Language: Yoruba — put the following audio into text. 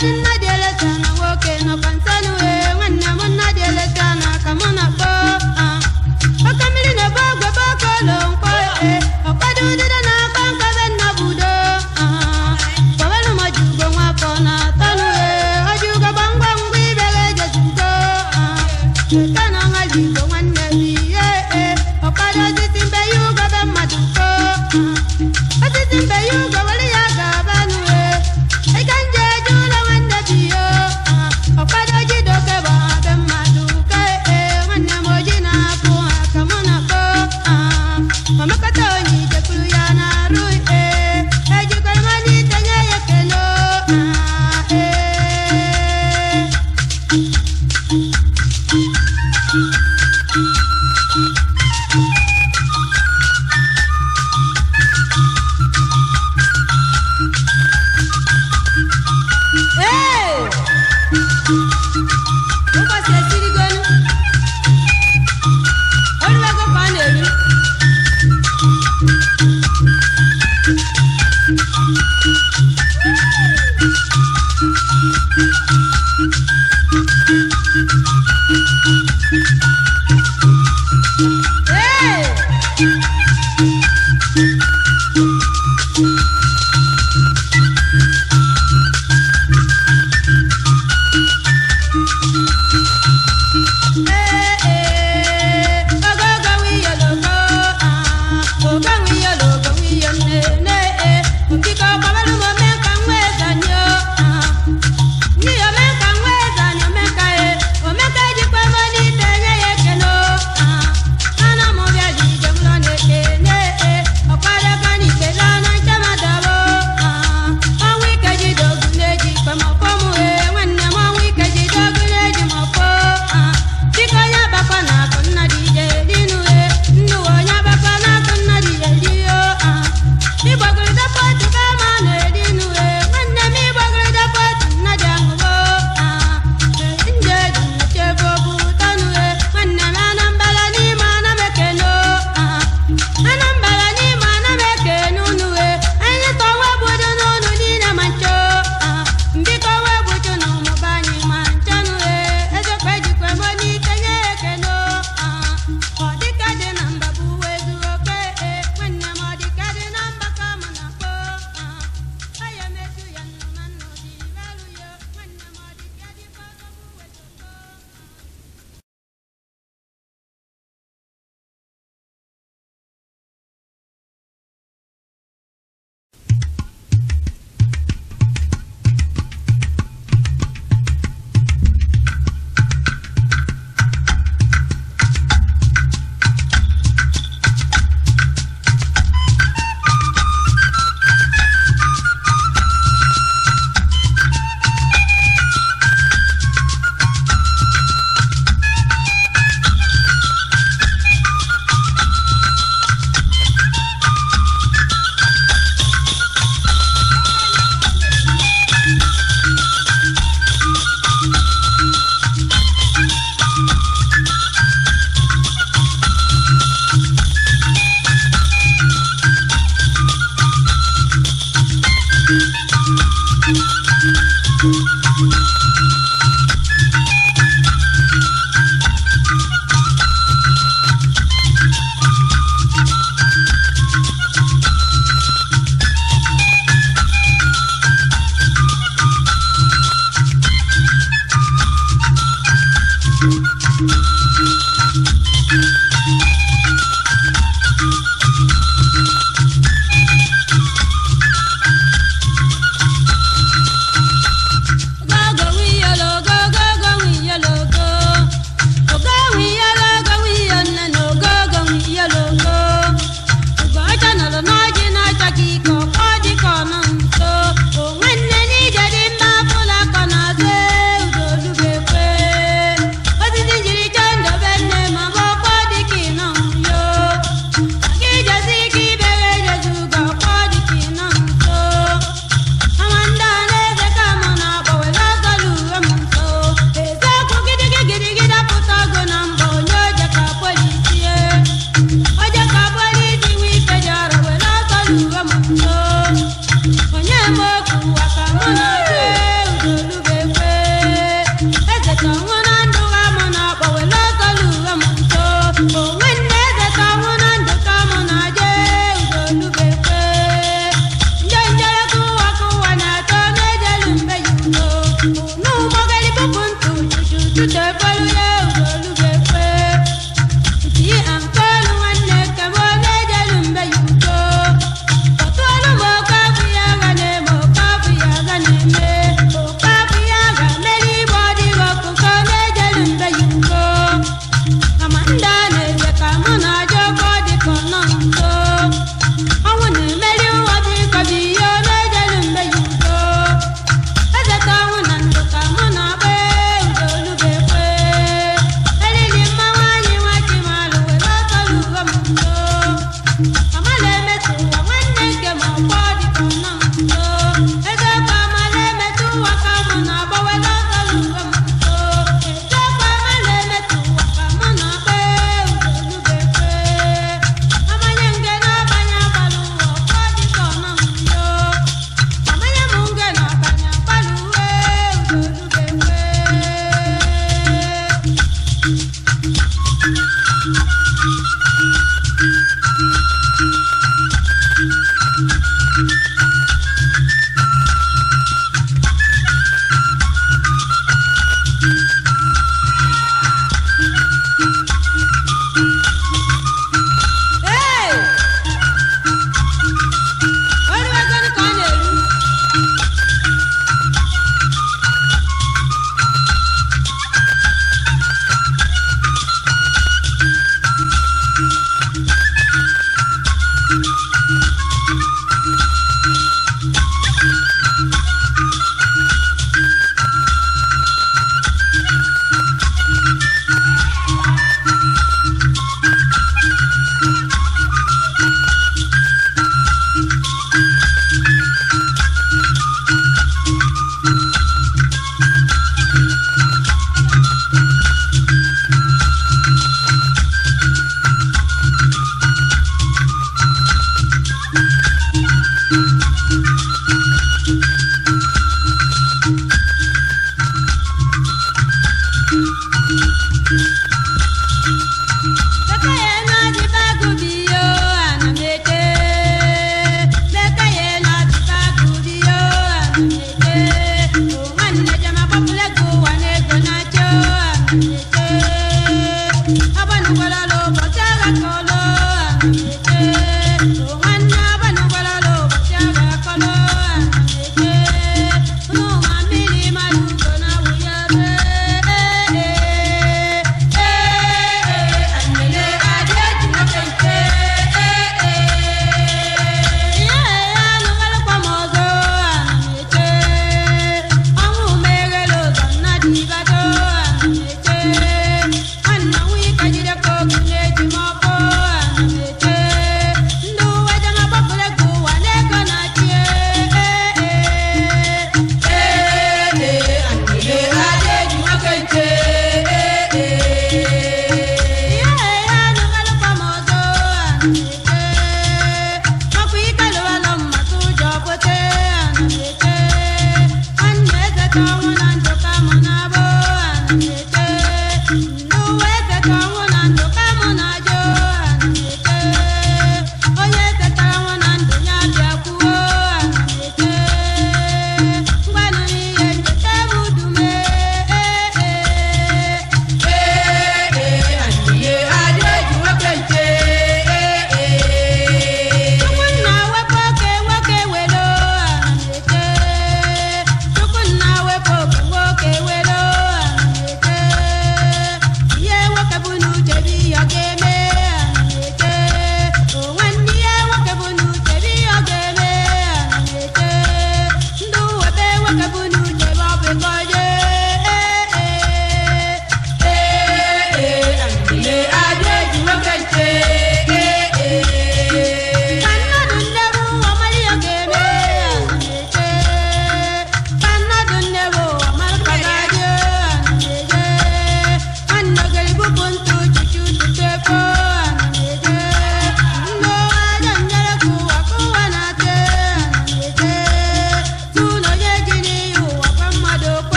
I'm dear, and I'm walking up and telling ṣe rí. thank you